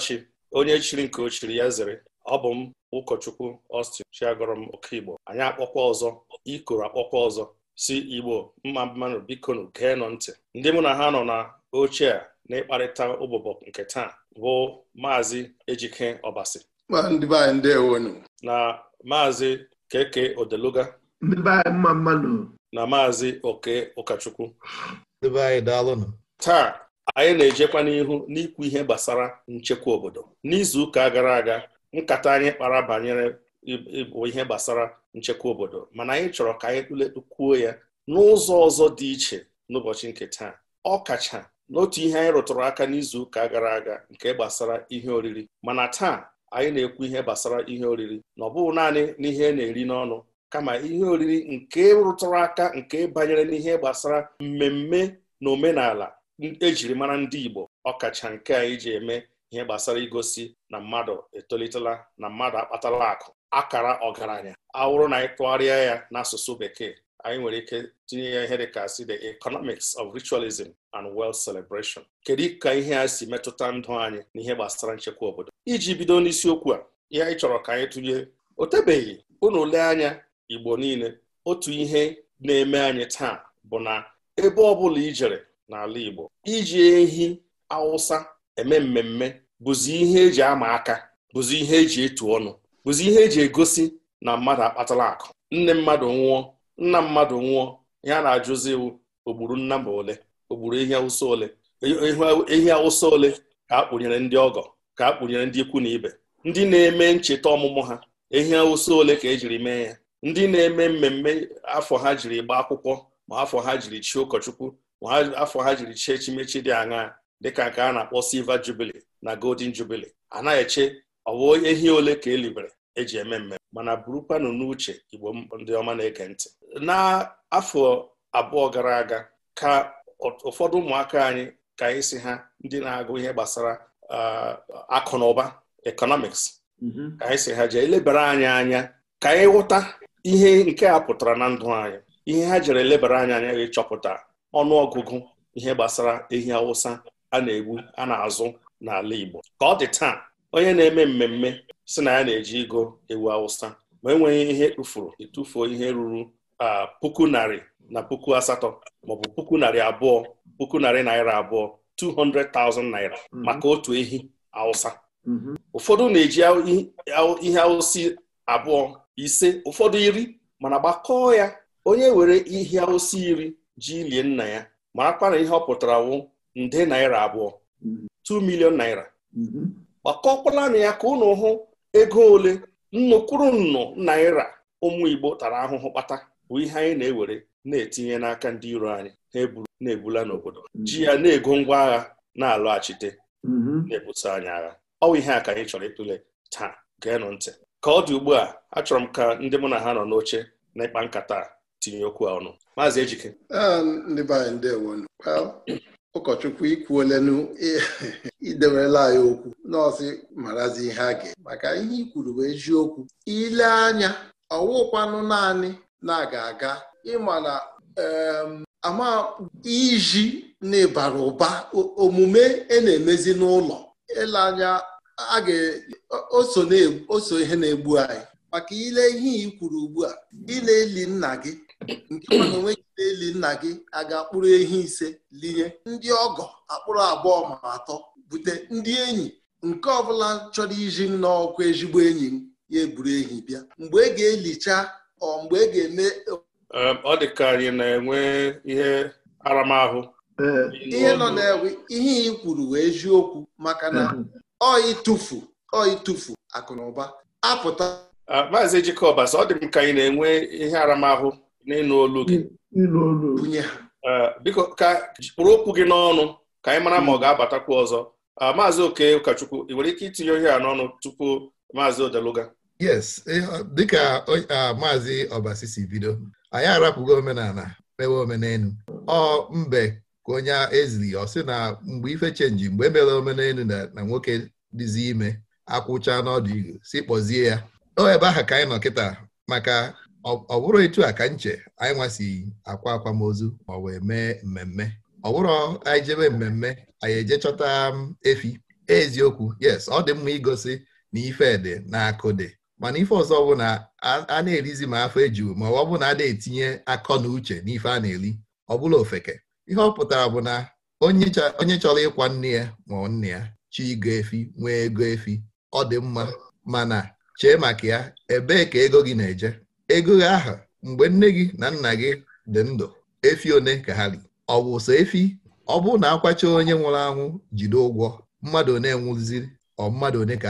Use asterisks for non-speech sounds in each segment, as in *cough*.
Amarachi onye chiri nke ochiri ya zere ọ bụ m ụkọchukwu Austin chiagọrọ m oke Igbo anyị akpọkwa ọzọ ikoro akpọkwa ọzọ si Igbo mma mmanụ bikonu geenụ ntị ndị mụ na ha nọ na oche a na-ịkparịta ụbụbọ nke taa bụ maazị Ejike Ọbasi na maazị Keke Odeluga na maazị Oke ụkọchukwu taa anyị na-ejekwa n'ihu n'ikwu ihe gbasara nchekwa obodo n'izu ụka gara aga nkata anyị kpara banyere ịbụ ihe gbasara nchekwa obodo mana anyị chọrọ ka anyị tụlekwuo ya n'ụzọ ọzọ dị iche n'ụbọchị nke taa ọ kacha n'otu ihe anyị rụtụrụ aka n'izu ụka gara aga nke gbasara ihe oriri mana taa anyị na-ekwu ihe gbasara ihe oriri na ọ bụghị naanị n'ihe e na-eri n'ọnụ kama ihe oriri nke rụtụrụ aka nke banyere n'ihe gbasara mmemme na omenala ejiri mara ndị Igbo ọkacha nke a iji eme ihe gbasara igosi na mmadụ etolitela na mmadụ akpatala akụ akara ọgaranya awụrụ na anyị tụgharịa ya n'asụsụ bekee anyị nwere ike tinye ya ihe dịka si the economics of ritualism and wealth celebration kedu ka ihe a si metụta ndụ anyị na ihe gbasara nchekwa obodo iji bido n'isiokwu a ihe anyị chọrọ ka anyị tụnye o tebeghị unu lee anya Igbo niile otu ihe na-eme anyị taa bụ na ebe ọ bụla ijere n'ala Igbo iji ehi awụsa eme mmemme bụzi ihe eji ama aka bụzi ihe eji etu ọnụ bụzi ihe eji egosi na mmadụ akpatala akụ nne mmadụ nwụọ nna mmadụ nwụọ ya na-ajụzi ogburu nna ma ole ogburu ehi awụsa ole ehi awụsa ole ka a kpụnyere ndị ọgọ ka a kpụnyere ndị ikwu na ibe ndị na-eme ncheta ọmụmụ ha ehi awụsa ole ka ejiri mee ya ndị na-eme mmemme afọ ha jiri gba akwụkwọ ma afọ ha jiri chi ụkọchukwu afọ ha jiri chie echimechi dị aṅa dịka nke a na-akpọ silver jubilee na golden jubilee anaghị eche ọwụ ehi ole ka elibere eji eme mmemme mana burukwanụ n'uche igbo ndị ọma na-ege ntị n'afọ abụọ gara aga ka ụfọdụ ụmụaka anyị ka anyị si ha ndị na-agụ ihe gbasara uh, akụ na ụba economics mm-hmm. ka anyị si ha jee elebara anyị anya ka anyị ghọta ihe nke a pụtara na ndụ anyị ihe ha jere elebara anyị anya gị chọpụta ọnụọgụgụ ihe gbasara ehi awụsa a na-egbu a na-azụ n'ala Igbo ka ọ dị taa onye na-eme mmemme si na ya na-eji igo ewu awụsa ma enweghị ihe tụfuru ịtụfuo e ihe ruru puku narị na puku asatọ maọbụ puku narị abụọ puku narị naira abụọ 200,000 naira mhm. maka otu ehi awụsa mhm. ụfọdụ na-eji ihe awụsi abụọ ise ụfọdụ iri mana gbakọọ ya onye were ihe awụsa iri ji lie nna ya marakwa na ihe ọ pụtara wụ nde naira abụọ 2 milion naira gbakọkwala na ya ka ụnụ hụ ego ole nnukwuru nnụ naira ụmụ Igbo tara ahụhụ kpata bụ ihe anyị na-ewere na-etinye n'aka ndị iro anyị na-eburu na-ebula n'obodo ji ya na-ego ngwa agha na-alọghachite na-ebuso anyị agha ọ bụ ihe a ka anyị chọrọ ịtụle taa geenụ ntị ka ọ dị ugbu a achọrọ m ka ndị mụ na ha nọ n'oche na ịkpa nkata tinye okwu a ọnụ maazị Ejike ah, ndị be anyị ndewo ụkọchukwu ikwuolenu idewela anyị okwu nọọsụ marazi ihe a ga maka ihe i kwuru bụ eziokwu ile anya ọwụkwanụ naanị na-aga aga ịma na ama iji n'ịbara ụba omume e na-emezi n'ụlọ ile anya a ga-oso ihe na-egbu anyị maka ile ihe i kwuru ugbu a ile eli nna gị ndị mana onweghide eli nna gị a ga-akpụrụ ehi ise linye ndị ọgọ akpụrụ abụọ ma atọ bute ndị enyi nke ọbụla chọrọ iji m n'ọkwa ezigbo enyi m ya eburu ehi bịa mgbe e ga-elicha ọ mgbe e ga-eme ọ dị ka anyị na-enwe ihe aramahụ ihe nọ na-ewe ihe ị kwuru wee eziokwu maka na ọ ịtụfu ọ ịtụfu akụ na ụba apụta maazị Jikọbas ọ dị m ka anyị na-enwe ihe aramahụ n'ịnụ olu gị eh, biko ka kpụrụ okwu gị n'ọnụ ka anyị mara ma ọ mm. ga-abatakwu ọzọ eh, maazị oke ụkọchukwu ị nwere ike itinye ohe a n'ọnụ tupu maazị odeluga yes dịka eh, maazị ọbasi si bido anyị arapụgo omenala mewe omenelu ọ mbe ka onye eziri ọ sị na mgbe ife chenji mgbe emere omenelu na nwoke dịzi ime akwụcha n'ọdụ igu si kpọzie ya o ebe ahụ ka anyị nọ kịta maka ọ bụrụ etu a ka nche anyị nwasi akwa akwamozu ma wee mee mmemme ọ bụrụ anyị jebe mmemme anyị eje chọta um, efi eziokwu yes ọ dị mma igosi na ife dị na akụdị mana ife ọzọ bụ na a na-erizi ma afọ ejuo ma ọ bụ na a na-etinye akọ na uche n'ife a na-eri ọ bụla ofeke ihe ọ pụtara bụ na onye chọrọ ịkwa nne ya ma nne ya chi igo efi nwee ego efi ọ dị mma mana chee maka ya ebee ka ego gị na-eje ego ahụ mgbe nne gị na nna gị dị ndụ efi one ka ha ri ọ bụ sọ efi ọ bụrụ na akwacha onye nwụrụ anwụ jide ụgwọ mmadụ one nwụziri ọ mmadụ one ka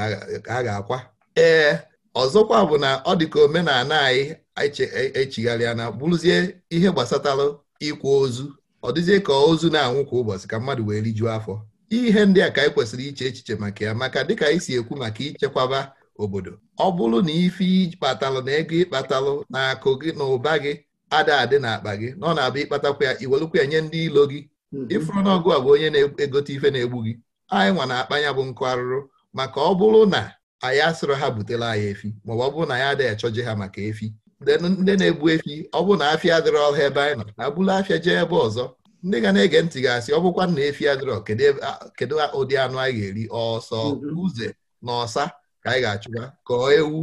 a ga-akwa ee ọzọkwa bụ na ọ dị ka omenala anyị echigharịa na bụrụzie ihe gbasatara ịkwa ozu ọ dịzie ka ozu na-anwụ kwa ụbọchị ka mmadụ wee rijuo afọ ihe ndị a ka anyị kwesịrị iche echiche maka ya maka dịka anyị si ekwu maka ichekwaba obodo ọ bụrụ na ife ịkpatalụ na ego ịkpatalụ na akụ gị na ụba gị ada adị n'akpa gị na ọ na-abịa ịkpatakwa ya iwelụkwa ya nye ndị ilo gị hmm. ịfụrụ n'ọgụ a bụ onye na-egote ife na-egbu gị anyị nwa na akpanya bụ nkụ arụrụ maka ọ bụrụ na anyị asịrọ ha butela anyị efi maọbụ ọ bụrụ na ya adịghị achọje ha maka efi ndị na-egbu efi ọ bụrụ na afịa adịrọ ọha ebe anyị nọ na abụla afịa jee ebe ọzọ ndị ga na-ege ntị ga-asị ọ bụkwa na efi adịrọ kedu ụdị anụ anyị ga-eri ọsọ hmm. uze na ọsa ka anyị ga-achụga kọọ ewu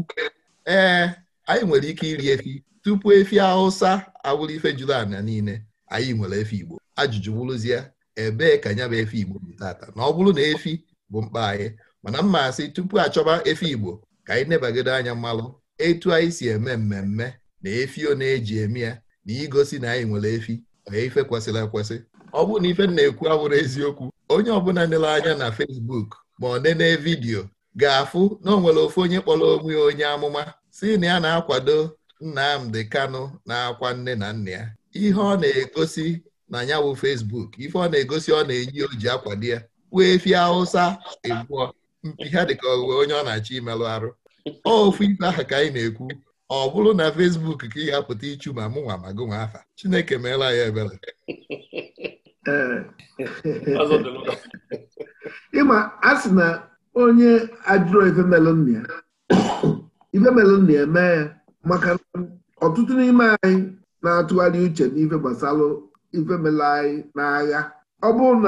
ee anyị nwere ike iri efi tupu efi awụsa awụrụ ife juru niile anyị nwere efi Igbo ajụjụ bụrụzie ebee ka nya bụ efi Igbo tata na ọ bụrụ na efi bụ mkpa anyị mana mma asị tupu achọba efi Igbo ka anyị nebagide anya mmalụ etu anyị si eme mmemme na efi ọ na-eji eme ya na igosi na anyị nwere efi onye ife kwesịrị ekwesị ọ bụrụ na ife na-ekwu awụrụ eziokwu onye ọbụla nere anya na Facebook ma ọ nene vidiyo ga-afụ na o ofu onye kpọrọ onwe onye amụma si na ya na-akwado Nnamdi Kanu na-akwa nne na nna ya ihe ọ na-egosi na ya bụ Facebook ife ọ na-egosi ọ na eyi o ji akwado ya wee efi Hausa egbuo mpi ha dịka ọghụwe onye ọ na-achọ imelụ arụ ofu ife ahụ ka anyị na-ekwu ọ bụrụ na Facebook ka ị ga-apụta ichu ma mụ nwa ma gụ nwa afa Chineke meela ya ebere ịma a na onye ajụrụ ifemelu nna ya ifemelu ya maka ọtụtụ n'ime anyị na-atụgharị uche n'ife gbasara ifemelu anyị n'agha ọ bụrụ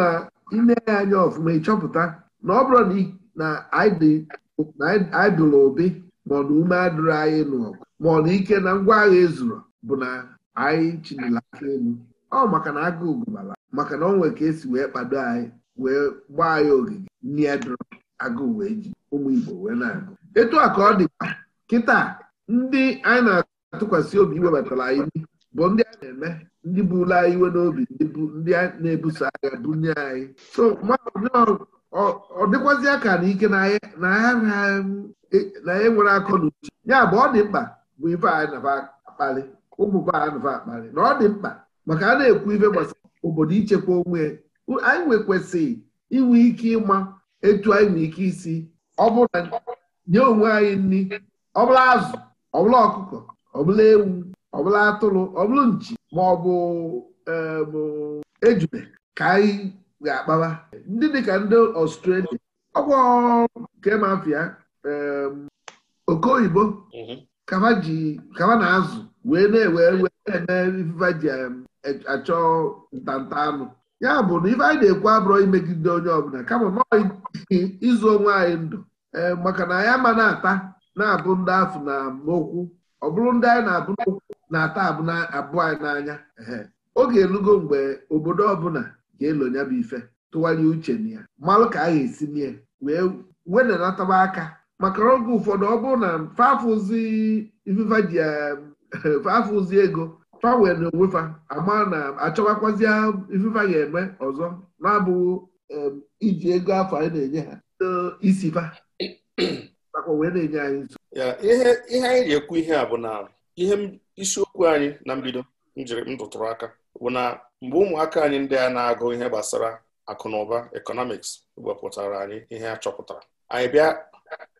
na ya anya ọfụma ịchọpụta na ọ bụrụ na anyị dụrụ obi maọna ume adụrụ anyị n'ọgụ na ike na ngwa agha ezuru bụ na anyị chinila aka elu ọ maka na agụ gụbara maka na ọ nwere ka esi wee kpado anyị wee gbaa anyị ogige nri ya agụụ wee ji ụmụ Igbo wee na-agụ etu a ka ọ dịkwa kịta ndị anyị na-atụkwasị obi iwebatara anyị bụ ndị a na-eme ndị bula iwe n'obi ndị na-ebuso agha bunye anyị so ọ dịkwazị aka na ike na anyị e, e nwere akọ na uche ya bụ ọ dị mkpa bụ ife anyị na-akpali ụmụba anyị na-akpali na ọ dị mkpa maka a na-ekwu ife gbasara obodo ichekwa onwe anyị nwekwesịrị inwe ike ịma etu anyị n'ike isi nye onwe anyị nri ọbụla azụ ọbụla ọkụkọ ọbụla ewu ọbụla atụrụ ọbụla nchi ma ọ bụ e, ejube ka anyị ga-akpawa ndị dịka ndị ọstrelia ọgwụ nke mafia e, oke oyibo mhm. kama na azụ wee na-ewe eme ji e, achọ ntanta anụ ya bụ na ife anyị na-ekwu abụrụ imegide onye ọbụla kama ịzụ onwe anyị ndụ e, maka na anyị ama na-ata na-abụ ndị afụ na okwu ọ bụrụ ndị anyị na-abụ n'okwu na-ata abụ anyị n'anya oge elugo mgbe obodo ọbụla ga-elo ya bụ ife tụwanye uche na ya malụ ka ga esi nye wee wenanataba aka maka oge ụfọdụ ọ bụrụ na fafụzi *laughs* ego fawe na onwefa ama na achọwakwazie ifefa ga-eme ọzọ na-abụghị iji ego afọ anyị na-enye ha fa *clears throat* nakwa wee na-enye anyị nso ihe anyị na-ekwu ihe a bụ na ihe isiokwu anyị na mbido njiri m tụtụrụ aka bụ na mgbe ụmụaka anyị ndị a na-agụ ihe gbasara akụ na ụba ekọnọmiks wepụtara anyị ihe a chọpụtara anyị bịa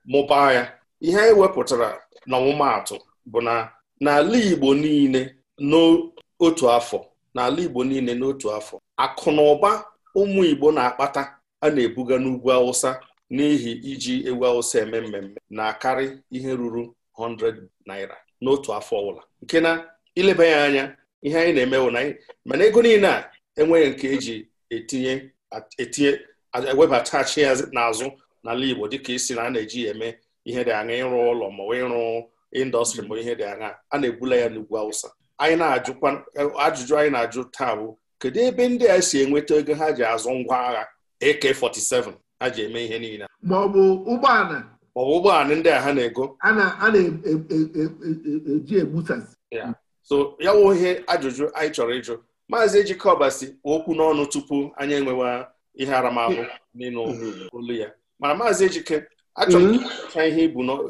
mụbaa ya ihe anyị wepụtara n'ọmụmaatụ bụ na n'ala Igbo niile n'otu afọ n'ala Igbo niile n'otu afọ akụ na ụba ụmụ Igbo na-akpata a na-ebuga n'ugwu Awụsa n'ihi iji egwu Awụsa eme mmemme na-akarị ihe ruru 100 naira n'otu afọ ọbụla nke na ileba ya anya ihe anyị na-emewo na anyị mana ego niile a enweghị nke eji etinye etinye ewebatachi ya n'azụ n'ala Igbo dịka isi na a na-eji ya eme ihe dị aṅa ịrụ ụlọ ma ịrụ indọstrị ma ihe dị aṅa a na-ebula ya n'ugwu Awụsa anyị na-ajụkwa ajụjụ anyị na-ajụ taa bụ kedu ebe ndị a si enweta ego ha ji azụ ngwa agha AK47 ha ji eme ihe niile ma ọ bụ ụgbọala ọ bụ ụgbọala ndị a ha na-ego a na-eji e, e, e, egbusasị so ya wụ ihe ajụjụ anyị chọrọ ịjụ maazị Ejikeọba si okwu n'ọnụ tupu anyị enwewa ihe aramahụ n'ịnụ ya mana maazị Ejike achọrọ m ihe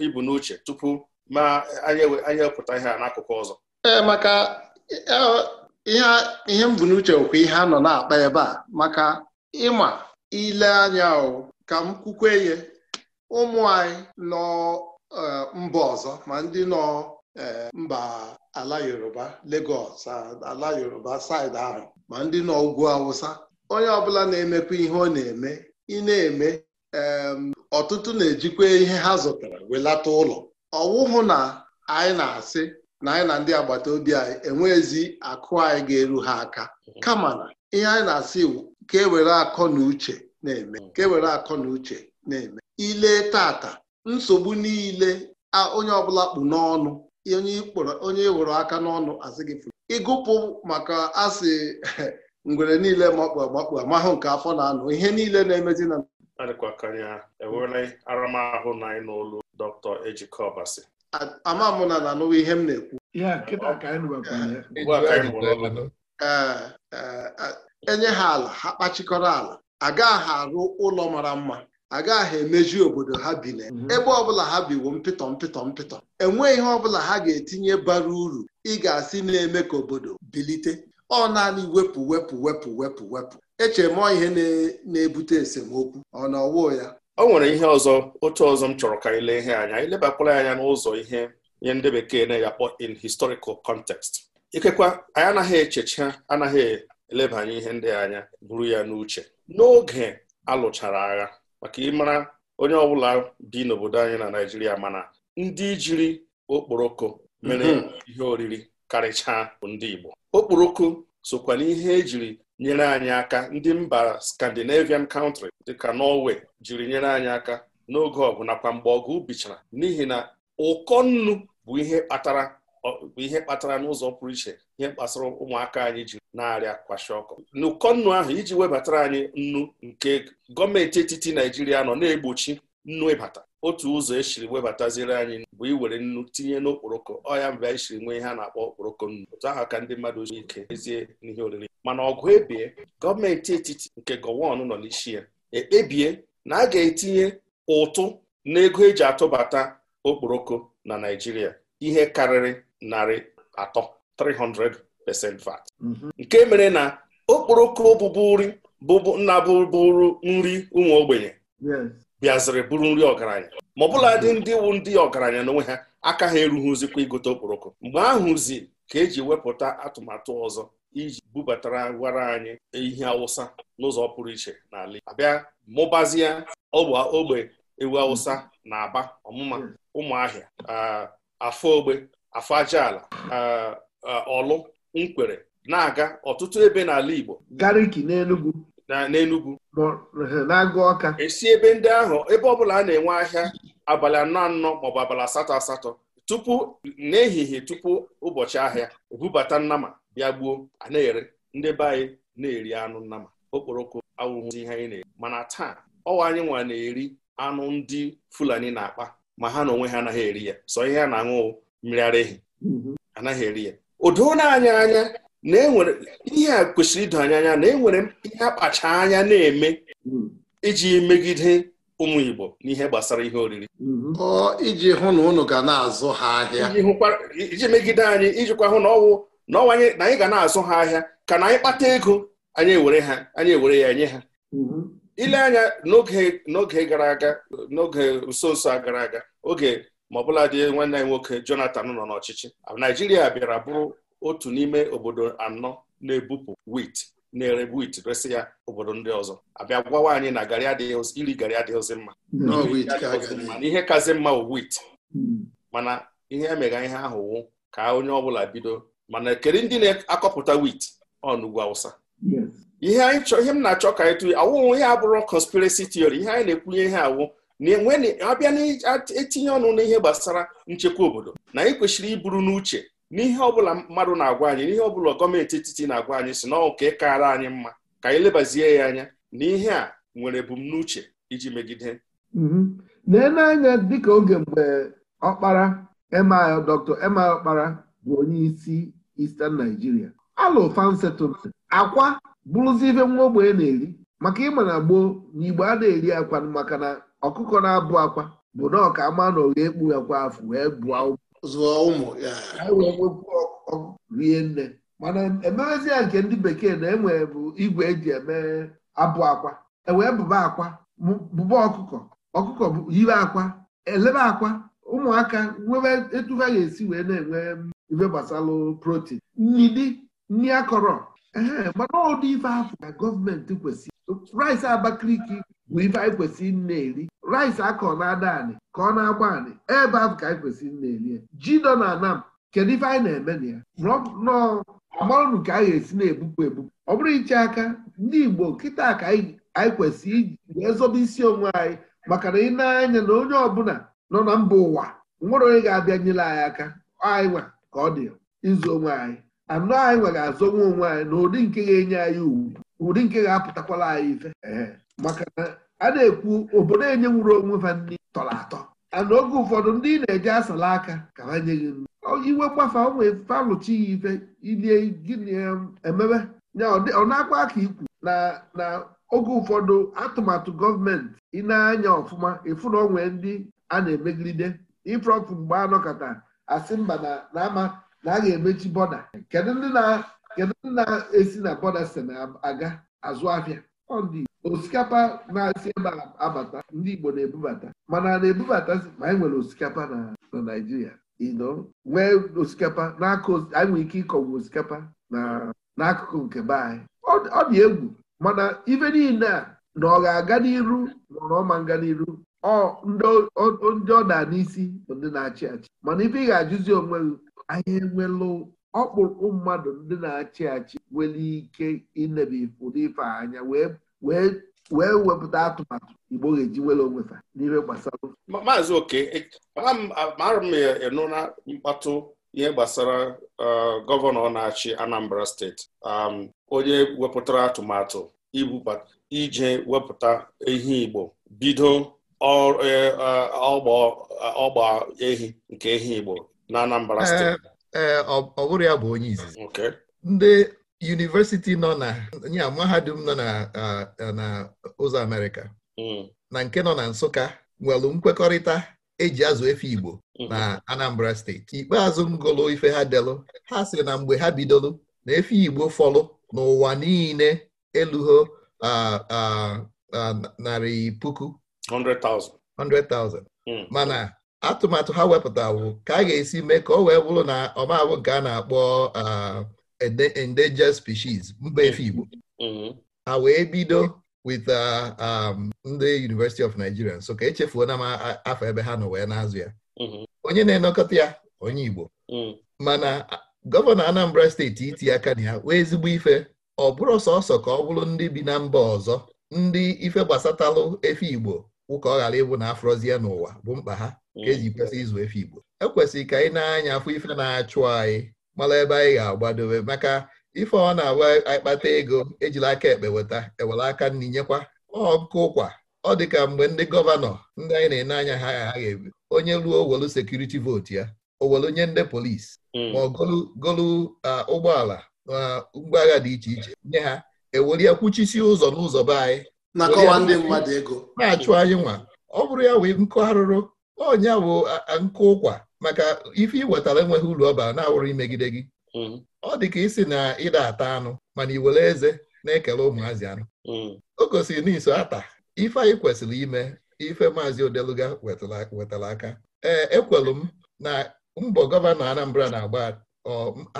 ibu n'uche tupu ma anyị ewepụta ihe a n'akụkụ ọzọ ee maka e, e, ihe m n'uche okwu ihe a nọ na-akpa ebe a maka ịma ile anya ka m kwukwe ye ụmụ anyị nọ e, mba ọzọ ma ndị nọ mba ala Yoruba Lagos ala Yoruba side ahụ ma ndị nọ ugwu Awụsa onye ọbụla na-emekwa ihe ọ na-eme ị na-eme ọtụtụ na-ejikwa ihe ha zụtara welata ụlọ ọwụhụ na anyị na-asị na anyị na ndị agbata obi anyị enweghịzi akụ anyị ga-eru ha aka mhm. kama na ihe anyị na-asị ka ewere akọ na uche na-eme mhm. ka ewere akọ na uche na-eme ile tata nsogbu niile onye ọbụla kpụ n'ọnụ onye ịwụrụ aka n'ọnụ asị gị ịgụpụ maka asị *laughs* ngwere niile makpu agbakpu amahụ nke afọ na-anụ ihe niile na-emezi na adịkwakanya enwere aramahụ na anyị n'olu Dr. Ejike Obasi ama m na na anụwa ihe m na-ekwu enye ha ala ha kpachikọrọ ala agaghị arụ ụlọ mara mma agaghị emeju obodo ha bi na mhm. ebe ọbụla ha biwo mpịtọ mpịtọ mpịtọ enweghị ihe ọbụla ha ga-etinye bara uru ị ga-asị na-eme ka obodo bilite ọ naanị wepụ wepụ wepụ wepụ wepụ echemọ ihe na-ebute esemokwu ọ na ọwụ ya o nwere ihe ọzọ otu ọzọ m chọrọ ka anyị ihe anya anyị lebakwala anya n'ụzọ ihe nye ndị bekee na eyakpọ in historical context ikekwa anyị anaghị echecha anaghị elebanye ihe ndị anya buru ya n'uche n'oge alụchara agha maka ịmara onye ọbụla bi n'obodo anyị na Naịjirịa mana ndị jiri okporoko mere mm-hmm. ihe oriri karịchaa ndị Igbo okporoko sokwa n'ihe ejiri nyere anyị aka ndị mba Scandinavian country dịka Norway jiri nyere anyị aka n'oge ọgụ nakwa mgbe ọgụ bichara n'ihi na ụkọ nnu bụ ihe kpatara n'ụzọ pụrụ iche ihe kpasara ụmụaka anyị ji na-arịa kwashi ọkọ n'ụkọ nnu ahụ iji webatara anyị nnu nke gọọmenti etiti Naijiria nọ na-egbochi nnwebata otu ụzọ esiri webataziri anyị bụ iwere nnu tinye n'okporoko ọya mgbe anyị siri nwee ihe a na-akpọ okporoko nnu otu ahụ ka ndị mmadụ ji ike ezie n'ihe oriri mana ọgụ ebie gọọmenti etiti nke gọwon nọ n'isi ya ekpebie na a ga-etinye ụtụ n'ego eji atụbata okporoko na Naijiria ihe karịrị narị atọ 300% VAT mhm. nke mere na okporoko nri bụbu nna bụbụrụ nri ụmụ ogbenye bịaziri bụrụ nri ọgaranya ma ọbụla dị ndị wụ ndị ọgaranya n'onwe ha aka ha erughịzikwa igote okporoko mgbe ahụzi ka eji wepụta atụmatụ ọzọ iji bubatara gwara anyị ihe awụsa n'ụzọ pụrụ iche n'ala Igbo abịa mụbazie ogbe ewu awụsa na aba ọmụma ụmụahịa afọ ogbe afọ ala, ọlụ nkwere na-aga ọtụtụ ebe n'ala Igbo gariki n'Enugwu na n'Enugwu na-agụ ọka esi ebe ndị ahụ ebe ọbụla a na-enwe ahịa abalị anọ anọ maọbụ abalị asatọ asatọ tupu n'ehihie tupu ụbọchị ahịa ebubata nnama bịa gbuo a na-ere ndị be anyị na-eri anụ nnama okporoko awụghị ihe anyị na-eri mana taa ọwa anyị nwa na-eri anụ ndị Fulani na-akpa ma ha na onwe ha anaghị eri ya sọ ihe a na-aṅụ mmiri ara ehi mhm. anaghị eri ya o na-anya anyị anya na enwere ihe a kwesịrị ido anya anya na enwere ihe akpacha anya na-eme hmm. iji megide ụmụ Igbo n'ihe gbasara ihe oriri hmm. iji hụ na ụnụ ga na-azụ ha ahịa iji megide anyị ijikwa hụ na ọwụ na ọnwanye na anyị ga na-azụ ha ahịa ka na anyị kpata ego anyị ewere ha anyị ewere ya nye ha hmm. ile anya n'oge gara aga n'oge nso nso a gara aga oge ma ọbụla dị nwanne anyị nwoke Jonathan nọ n'ọchịchị Naijiria bịara bụrụ otu n'ime obodo anọ na-ebupụ wit na-ere wit resị ya obodo ndị ọzọ abịa gwawa anyị na garị adịghị iri garị adịghịzi hmm. mma na ihe kazi mma bụ wit hmm. mana ihe emega ihe ahụ wụ ka onye ọbụla bido mana kedu ndị na-akọpụta wit ọnugwu awụsa ihe m na-achọ ka anyị awụghị awụwụ ihe abụrụ conspiracy theory ihe anyị na-ekwunye ihe awụ na enwe abịa na-etinye ọnụ n'ihe gbasara nchekwa obodo na anyị kwesịrị iburu n'uche n'ihe ọbụla mmadụ na-agwa anyị n'ihe ọbụla gọọmenti etiti na-agwa anyị si na ọka ịkara anyị mma ka anyị lebazie ya anya na ihe a nwere ebumnuche iji megide lee mhm. n'anya dịka oge mgbe ọkpara emil dr emil ọkpara bụ onye isi Eastern Nigeria alụ fan akwa bụrụzi ife nwa ogbenye na-eri maka ịma na gboo na igbo a na-eri akwa maka na ọkụkọ na-abụ akwa bụ na ọka ama na oghe ekpu akwa afọ wee bụọ ụmụ zụọ ụmụ rie nne mana ememezi ya nke ndị bekee na enwe bụ igwe eji eme abụ akwa ewee bụba akwa bụba ọkụkọ ọkụkọ yiwe akwa elebe akwa ụmụaka nwebe etu ha ga-esi wee na-enwe mm, ife gbasalụ protein nri akọrọ ee mana ụdị ife afọ ka gọọmenti kwesịrị rice Abakaliki bụ ife anyị kwesịrị na-eri rice akọ na ada anị ka ọ na-agba anị ebe ahụ ka anyị kwesịrị na-eri ya ji nọ na anam kedu ife anyị na-eme na ya nọọ amarụnụ ka a ga-esi na-ebupụ ebupụ ọ bụrụ iche aka ndị Igbo kịta ka anyị kwesịrị iji wee zọba isi onwe anyị maka na ị na-anya na onye ọbụla nọ na mba ụwa nwere onye ga-abịa nyere anyị aka anyị nwa ka ọ dị izu onwe anyị anụ anyị nwa ga-azọnwe onwe anyị ụdị nke ga-enye anyị ugwu ụdị nke ga-apụtakwala anyị ife maka na a na-ekwu obodo enyenwuru onwe ha nri tọrọ atọ ana oge ụfọdụ ndị na-eje asala aka ka ha nye gị nri iwe gbafa onwe falụchi ya ife ilie gịnị ya ọ na-akpa aka ikwu na na oge ụfọdụ atụmatụ gọọmenti ị anya ọfụma ịfụ na onwe ndị a na-emegide ifrọfụ mgbe anọkọta asị mba na ama na a ga-emechi bọda kedu ndị na kedu na-esi na na aga azụ ahịa ọdị osikapa na-asị ebe abata ndị Igbo na-ebubata mana na-ebubata ma anyị e nwere osikapa na Naịjirịa ino nwee osikapa anyị nwere ike ịkọgbu osikapa n'akụkụ nke be anyị ọ dị egwu mana ife niile a na ọ ga-aga n'iru ma ọ nga n'iru ndị ọ da n'isi bụ ndị na-achị achị mana ife ị ga-ajụzi onwe gị anyị enwelụ ọkpụrụkpụ mmadụ ndị na-achị achị nwere ike inebe ụdị ife anya wee wepụta atụmatụ igbo ga-eji nwere onwe ha n'ihe gbasara maazị oke e, mara m ịnụ na mkpatụ ihe gbasara e, gọvanọ na-achị Anambra steeti um, onye wepụtara atụmatụ ije wepụta ehi igbo bido e, ọgba ehi nke ehi igbo na Anambra eh, steeti ee ọ ya bụ onye izizi ndị yunivesiti nọ na ya mahadum nọ na ụzọ Amerịka hmm. na nke nọ na Nsụka nwere nkwekọrịta eji azụ efe Igbo hmm. na Anambra steeti ikpeazụ m gụlụ ife ha delụ ha sị na mgbe ha bidolu na efe Igbo fọlụ n'ụwa niile elugho narị puku 100,000 hmm. mana atụmatụ ha wepụta wepụtawo ka a ga-esi mee ka ọ wee bụrụ na ọmabụ nke a na-akpọ uh, endangered species mba efe Igbo ha wee bido with uh, um, ndị University of Nigeria so ka echefuona m afọ ebe ha nọ wee na ya onye na enekọta ya onye Igbo mana gọvanọ Anambra steeti iti aka na ya wee ezigbo ife ọ bụrụ sọsọ ka ọ bụrụ ndị bi na mba ọzọ ndị ife gbasatalụ efe Igbo wụka ọ ghara ịbụ na afroziya n'ụwa bụ mkpa ha ka eji kwesị ịzụ efe Igbo Ekwesịrị ka anyị na-anya afọ ife na-achụ anyị mara ebe anyị ga-agbadobe maka ife ọ na agwa anyị kpata ego ejila aka ekpe weta ewere aka nri nyekwa ọkụ ụkwa ọ dị ka mgbe ndị gọvanọ ndị anyị na-ene anya ha ha ga-ebi onye ruo owelu sekuriti vootu ya owelu nye ndị polisi hmm. ma ọ golu ụgbọala na ụgbọ agha dị iche iche nye ha ewere ya kwuchisi ụzọ n'ụzọ be anyị na-achụ anyị nwa ọ bụrụ ya wee nkọ arụrụ ọnya bụ nkụ ụkwa maka ife ị wetara enweghị uru bara na-awụrụ imegide gị hmm. ọ dị ka isi na ịda ata anụ mana iwere eze na-ekele ụmụazị anụ hmm. o gosiri n'iso ata ife anyị kwesịrị ime ife maazị odeluga wetara aka ee ekwelu m na mbọ gọvanọ Anambra na-agba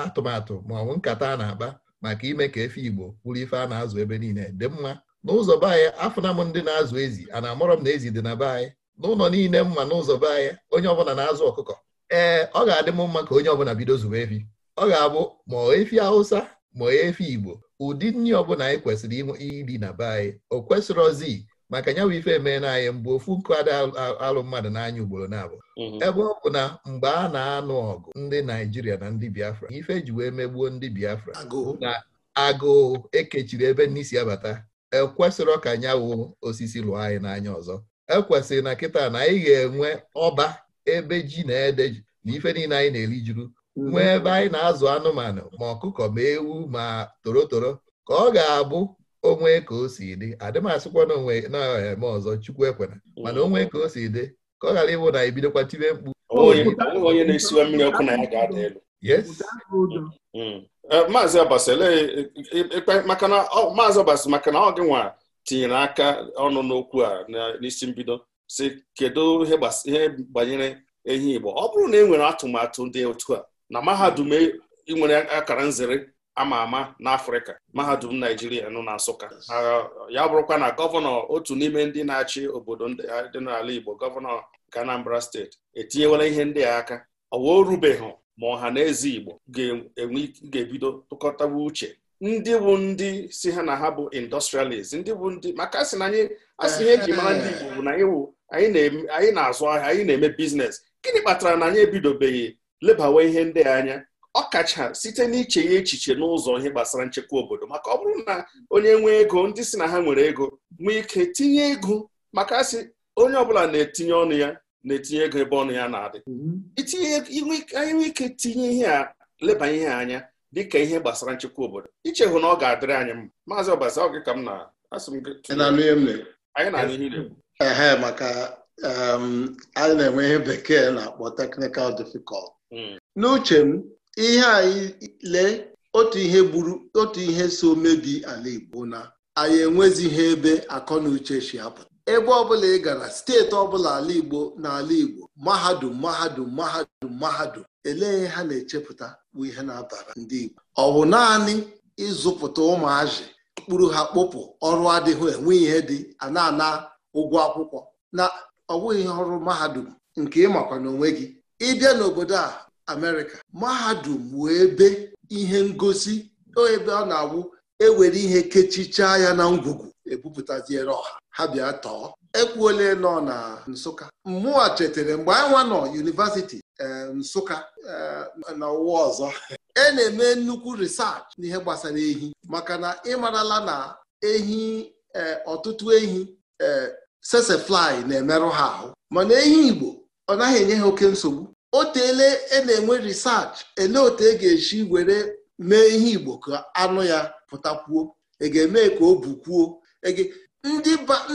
atụmatụ ma ọ nkata a na-akpa maka ime ka efe Igbo bụrụ ife a na-azụ ebe niile dị mma n'ụzọ be anyị afụna m ndị na-azụ ezi a na-amụrọ m na ezi dị na be anyị n'ụlọ niile mma n'ụzọ be anyị onye ọbụla na-azụ ọkụkọ ee ọ ga-adị m mma ka onye ọbụla bido zụwa efi ọ ga-abụ ma efi Hausa ma efi Igbo ụdị nri ọbụla anyị kwesịrị iri na be anyị o kwesịrị ozi maka nyanwụ ife emee na anyị mgbe ofu nkụ ada alụ mmadụ n'anya ugboro na-abụ mhm. ebe ọ bụ na mgbe a na-anụ ọgụ ndị Naijiria na ndị Biafra ife e ji wee megbuo ndị Biafra na agụụ ekechiri ebe n'isi abata ekwesịrị ka nyawụ osisi lụọ anyị n'anya ọzọ ekwesịrị na kịta na anyị ga-enwe ọba ebe ji na ede ji na ife niile anyị na-eri juru mhm. nwee ebe anyị na-azụ anụmanụ ma ọkụkọ ma ewu ma torotoro ka ọ ga-abụ onwe ka o si dị adịmasịkwa na onwe eh, na-eme ọzọ chukwu ekwena mana onwe ka o si dị ka ọ ghara ịbụ na ebidokwa tibe mkpu onye na-esiwe mmiri ọkụ na ya ga-ada elu mm. eh, maazị ọbasi e, e, e, maka na ọ gị nwa tinyere aka ọnụ n'okwu a n'isi mbido si kedu ihe gbanyere ehi Igbo ọ bụrụ na e nwere atụmatụ dị otu a na mahadum e, nwere akara nzere ama ama n'Afrịka mahadum Naijiria nọ na Nsụka ya bụrụkwa na gọvanọ otu n'ime ndị na-achị obodo dị n'ala Igbo gọvanọ nke Anambra steeti etinyewela ihe ndị a aka ọ wee rubeghị ma ọha na eze Igbo ga-ebido tụkọtawa uche ndị bụ ndị si ha na ha bụ industrialist ndị bụ ndị maka sị na anyị asị ihe eji mara ndị Igbo bụ na anyị na-azụ ahịa anyị na-eme biznes gịnị kpatara na anyị ebidobeghị lebawa ihe ndị anya ọkacha site n'iche ya echiche n'ụzọ ihe gbasara nchekwa obodo maka ọ bụrụ na onye nwee ego ndị si na ha nwere ego nwee ike tinye ego maka asị onye ọbụla na-etinye ọnụ ya na-etinye ego ebe ọnụ ya na-adị mm-hmm. itinye anyị nwee ike tinye ihe a leba ihe anya dịka ihe gbasara nchekwa obodo ichehụ na ọ ga-adịrị anyị mma maazị ọbasa ọ gị ka m na-asị m anyị na-anụ ihe ehe maka um, anyị na-enwe ihe bekee na-akpọ teknikal difficult hmm. n'uche m ihe anyị lee otu ihe gburu otu ihe so mebi ala Igbo na anyị ihe ebe akọ na uche si apụta ebe ọbụla ị gara steeti ọbụla ala Igbo na ala Igbo mahadum mahadum mahadum mahadum elee ha na-echepụta bụ ihe na-abara ndị Igbo ọ bụ naanị ịzụpụta ụmụazị mkpụrụ ha kpụpụ ọrụ adịghị enwe ihe dị ana na-ana ụgwọ akwụkwọ na ọ bụghị ọrụ mahadum nke ịmakwa n'onwe gị ịbịa n'obodo a Amerịka mahadum wee ebe ihe ngosi ebe ọ na-awụ ewere ihe kechichaa ya na ngwugwu ebupụtaziere ọha ha bịa tọọ ekwuole nọ na Nsụka mmụọ chetara mgbe anyị nwa nọ yunivasiti Nsụka eh, na ụwa ọzọ e na-eme nnukwu risachị n'ihe gbasara ehi maka na ịmarala na ehi eh, ọtụtụ ehi eh, sesefly na-emerụ ha ahụ mana ehi Igbo ọ naghị enye ha oke nsogbu otele e na-enwe risachị ele otu e ga-esi were mee ihe Igbo ka anụ ya pụtakwuo e ga-eme ka o bukwuo e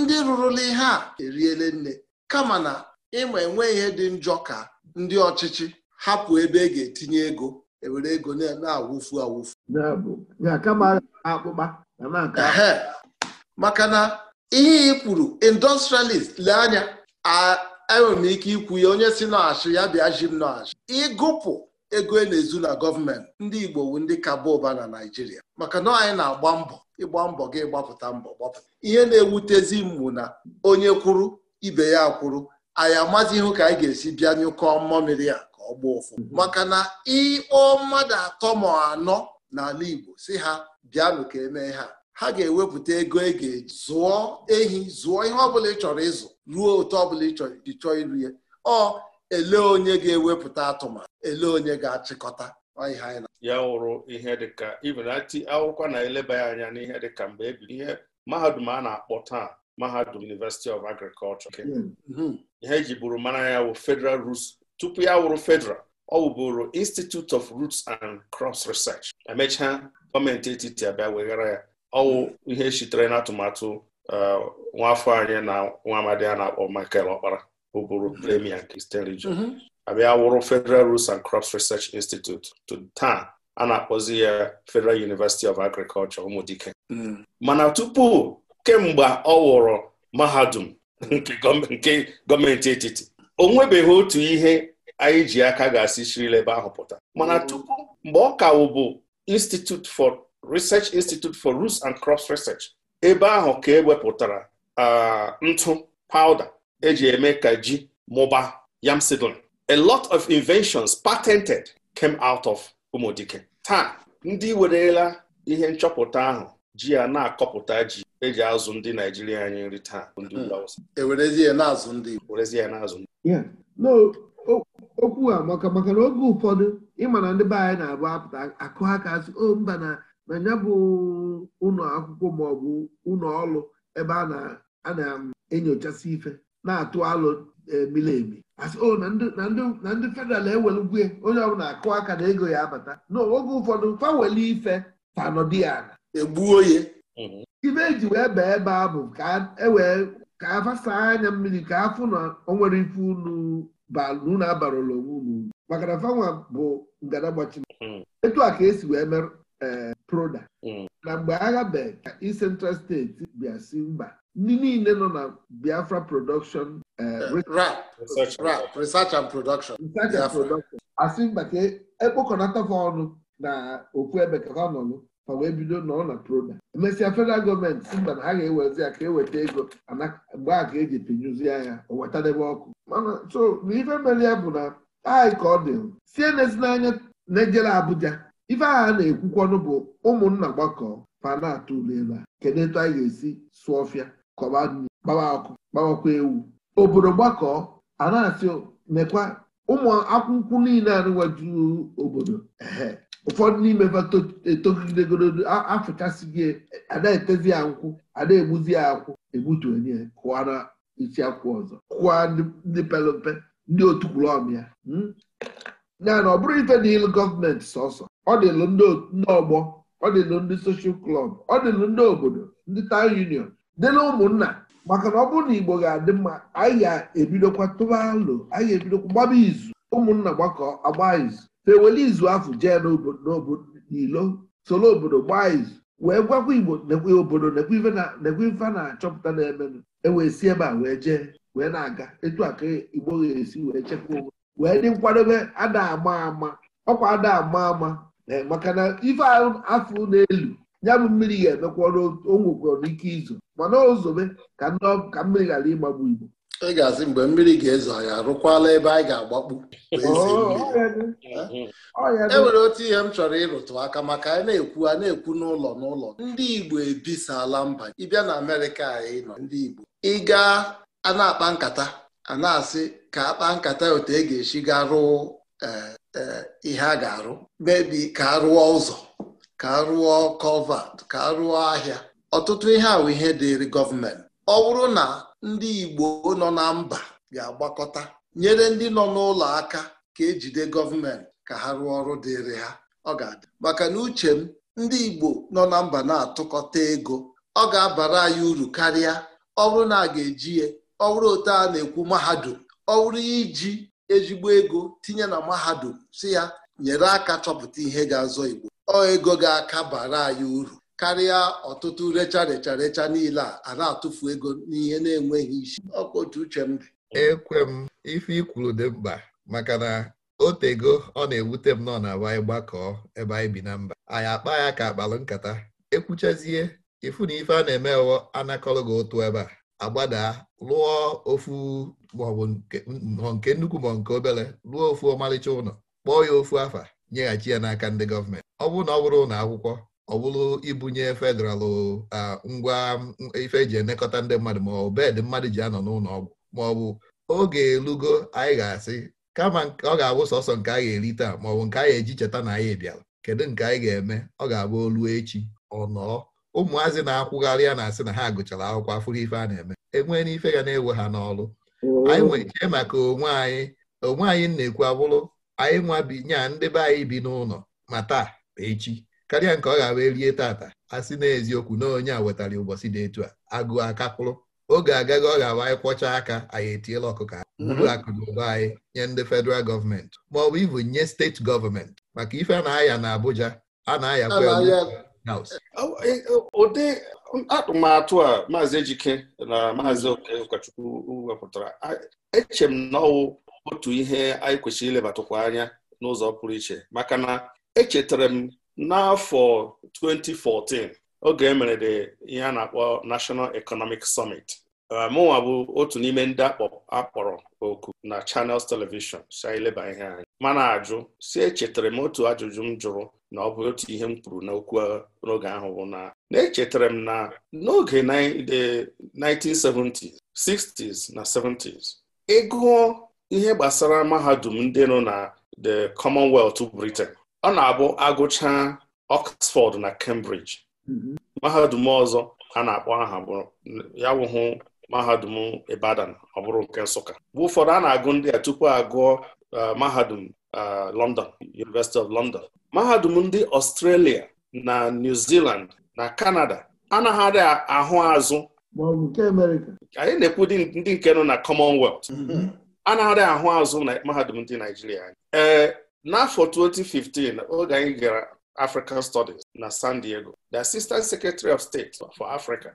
ndị rụrụla ihe a eriele nne kama na ịma enwe ihe dị njọ ka ndị ọchịchị hapụ ebe e ga-etinye ego ewere ego na-awụfu awụfu maka na ihe ị kwuru indọstrialist lee anya enwere m ike ikwu ya onye si n'achị ya bịa ji m n'achị ịgụpụ ego e na-ezu na gọọmenti ndị Igbo wu ndị kaba ụba na Naijiria. maka na anyị na-agba mbọ ịgba mbọ gị gbapụta mbọ gbapụta ihe na-ewutezi mmụ na onye kwuru ibe ya kwuru anyị amazi ihu ka anyị ga-esi bịa nyụkọ mmamiri a ka ọ gbaa ụfụ maka na ịkpọ mmadụ atọ ma anọ n'ala Igbo si ha bịanụ ka emee ha ha ga-ewepụta ego e ga-eji zụọ ehi zụọ ihe ọbụla ị chọrọ ịzụ ruo otu ọbụla ị chọrọ iji chọọ iru ya ọ ele onye ga-ewepụta atụmatụ ele onye ga-achịkọta ya wụrụ ihe dịka ibenati akwụkwọ na-eleba ya anya n'ihe dịka mgbe ebiri ihe mahadum a na-akpọ taa mahadum University of Agriculture hmm, hmm. ihe ji bụrụ mara ya wụ Federal Roots tupu ya wụrụ Federal ọ wụbụrụ Institute of Roots and Cross Research emechaa gọọmenti etiti abịa weghara ya ọwụ ihe sitere n'atụmatụ uh, nwafọ anyị na nwa amadi a na-akpọ Michael Ọkpara bụbụrụ premier nke Region abịa wụrụ Federal Roots and Crops Research Institute to taa a na-akpọzi ya Federal University of Agriculture Ụmụdike mm. mana tupu kemgbe ọ wụrụ mahadum nke gọọmenti etiti o nwebeghị otu ihe anyị ji aka ga-asị sirila ebe ahụ pụta mana mm. tupu mgbe ọ ka bụ Institute for Research Institute for Roots and Crops Research ebe ahụ ka ewepụtara uh, ntụ pawuda eji eme ka ji mụba yam seedling a lot of inventions patented came out of Umudike taa ndị werela ihe nchọpụta ahụ ji a na-akọpụta ji eji azụ ndị Naijiria anyị nri taa okwu a maka maka na oge ụfọdụ ịma na ndị be anyị na-abụ apụta akụ ha ka asị o oh, mba na na ya bụ ụlọ akwụkwọ maọbụ ụlọ ọrụ ebe a na-enyochasị um, ife na-atụ alụ e, emi. asị oh, o na ndị federal ewelugwe onye ọbụla akụ aka na ego ya abata n'oge ụfọdụ fa ife fanọdị egbuo ya ibe mhm. eji wee baa ebe a bụ ka e wee ka anya mmiri ka afụ na o nwere ife unu unu abarala onwe unu maka na fanwa bụ ngadagbachi mhm. etu a ka esi wee mere eh, proda mhm. na mgbe agha be ka Central steeti bịa si mba ndị niile nọ na Biafra production eh, eh, research and production asị mba ka ekpokọnata e ọnụ na okwu ebe ka ha fa wee bido nọ na proda emesịa federal gọọmenti si mba na ha ga-ewezi ya ka eweta ego mgbe a ka eji pinyụzi ya o wetadebe ọkụ mana so na ife mere ya bụ na anyị ka ọ dị sie n'anya na-ejere Abuja ife agha na-ekwukwanụ bụ ụmụnna gbakọ fa na-atụ a kedu etu anyị ga-esi sụọ ọfịa kọba nri gbawa ọkụ gbawakwa ewu obodo gbakọ a na-asị mekwa ụmụ akwụkwọ niile anụwaju obodo ehe ụfọdụ n'ime etogidegoro si gị ana-etezi ya nkwụ ana-egbuzi ya akwụ egbutu onye kụwara isi akwụ ọzọ kụwa ndị pere mpe ndị otu kwuru ọm ya hmm? ya na ọ bụrụ ife na ịlụ gọọmenti sọsọ ọ dịlụ ndị ọgbọ ọ dịlụ ndị soshal klọb ọ dịlụ ndị obodo ndị taụn union dịlụ ụmụnna maka na ọ bụrụ na igbo ga-adị mma anyị ga-ebidokwa tụba alo anyị ga-ebidokwa gbaba izu ụmụnna gbakọ agba izu ha ewele izu afụ jee n'ilo soro obodo gbaa izu wee gwakwa igbo obodo nekwe ife na-achọpụta na-emenụ ewee si ebe a wee jee wee na-aga etu a ka igbo ga-esi wee chekwa onwe wee dị nkwadobe ada ama ama ọkwa ada ama ama eh, maka na ife afụ n'elu ya bụ mmiri ga-emekwa onwekwara n'ike izo mana ozobe ka mmiri ghara ịgbagbu igbo ị ga-asị mgbe mmiri ga-ezo ya rụkwala ebe anyị ga-agbakpu oh, oh, oh, e nwere otu ihe m chọrọ ịrụtụ aka maka anyị na-ekwu a na-ekwu n'ụlọ n'ụlọ ndị Igbo ebisala mba ịbịa na Amerịka anyị nọ ndị Igbo ịga a na-akpa nkata a na-asị ka akpa nkata otu e ga-esi ga rụọ e, e, ihe a ga-arụ mebi ka a rụọ ụzọ ka a rụọ kọvat ka a rụọ ahịa ọtụtụ ihe ahụ ihe dịịrị gọọmenti ọ bụrụ na ndị Igbo nọ na mba ga-agbakọta nyere ndị nọ n'ụlọ aka ka ejide gọọmenti ka ha rụọ ọrụ dịịrị ha ọ ga-adị maka na uche m ndị Igbo nọ na mba na-atụkọta ego ọ ga-abara anyị uru karịa ọ bụrụ na a ga-eji ya ọ bụrụ otu a na-ekwu mahadum ọ bụrụ iji ezigbo ego tinye na mahadum si ya nyere aka chọpụta ihe ga-azọ Igbo ọ ego ga-aka bara anyị uru karịa ọtụtụ recha recha recha niile a na-atụfu ego n'ihe na-enweghị isi ọkwa otu uche m dị ekwe m ife ikwuru dị mkpa maka na otego ọ na-ewute m nọ na be anyị gbakọọ ebe anyị bi na mba anyị akpa ya ka akpalụ nkata ekwuchazie ịfụ na ife a na-eme wo anakọrọ gị ụtụ ebe a agbada lụọ ofu maọbụ nke nnukwu ma nke obere lụọ ofu ọmalịcha ụlọ kpọọ ya ofu afa nyeghachi ya n'aka ndị gọọmenti ọ bụrụ na ọ bụrụ ụlọ akwụkwọ ọ bụrụ ibunye federalụ ngwa ife eji elekọta ndị mmadụ ma ọ bụ bedị mmadụ ji anọ n'ụlọ ọgwụ ma ọ bụ oge elugo anyị ga-asị kama ọ ga-abụ sọsọ nke ga eri taa maọbụ nke anyị eji cheta na anyị bịara kedu nke anyị ga-eme ọ ga-abụ olu echi ọ nọọ ụmụazị na-akwụgharị ya na-asị na ha gụchara akwụkwọ afụrụ ife a na-eme enwee n'ife ga na-ewe ha n'ọrụ mm-hmm. anyị nwere ike maka onwe anyị onwe anyị na-ekwu abụrụ anyị nwa bi nya ndị be anyị bi n'ụlọ ma taa echi karịa nke ọ ga wee rie tata a sị na eziokwu na onye a wetara ụbọchị dị etu a agụụ akapụrụ oge agaghị ọ ga-awa anyị kwọcha aka anyị etiela ọkụkọ buru mhm. akụ na ụba anyị nye ndị federal gọọmenti ma ọ bụ ibu nye steeti gọọmenti maka ife a na-aya na Abuja a na-aya e, e, ụdị atụmatụ a maazị Ejike na maazị Okechukwu wepụtara eche m otu ihe anyị kwesịrị ilebatụkwa anya n'ụzọ pụrụ iche maka na echetara m n'afọ 2014 oge emere dị ihe a na-akpọ National Economic Summit uh, mụnwa bụ otu n'ime ndị akpọrọ oku na Channels Television sileba ihe anyị mana ajụ si echetara m otu ajụjụ m jụrụ na ọ bụ otu ihe m kwuru n'okwu uh, n'oge ahụ bụ na na-echetara m na n'oge 1970s 60s na 70s ịgụọ ihe gbasara mahadum ndị nọ na the Commonwealth Britain ọ na-abụ agụcha Oxford na Cambridge mm-hmm. mahadum ọzọ a na-akpọ aha ya wụhụ mahadum Ibadan ọ bụrụ nke Nsụka bụ ụfọdụ a na-agụ ndị a tupu agụọ e, mahadum e, London University of London mahadum ndị Australia na New Zealand na Canada anaghị ahụ azụ anyị na-ekwu ndị nke nọ na Commonwealth mm-hmm. anaghị ahụ azụ na mahadum ndị Naijiria ee n'afọ 2015 oge anyị gara African Studies na San Diego the Assistant Secretary of State for Africa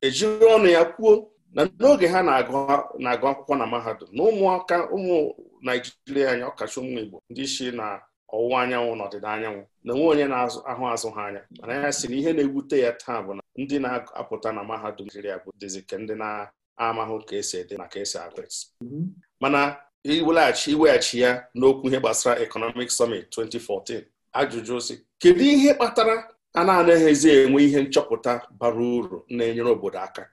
ejiri ọnụ ya kwuo na n'oge ha na-agụ akwụkwọ na mahadum na ụmụaka ụmụ Naijiria anya ọkacha ụmụ Igbo ndị isi na ọwụwa anyanwụ na ọdịda anyanwụ na onwe onye na-ahụ azụ ha anya mana ya sị na ihe na egwute ya taa bụ na ndị na-apụta na mahadum Naijiria bụ dịzị ka ndị na-amahụ ka esi ede na ka esi agụ mhm. mana iweghachi ya n'okwu ihe gbasara Economic Summit 2014 ajụjụ si kedu ihe kpatara a na-anaghịzi enwe ihe nchọpụta bara uru na-enyere obodo aka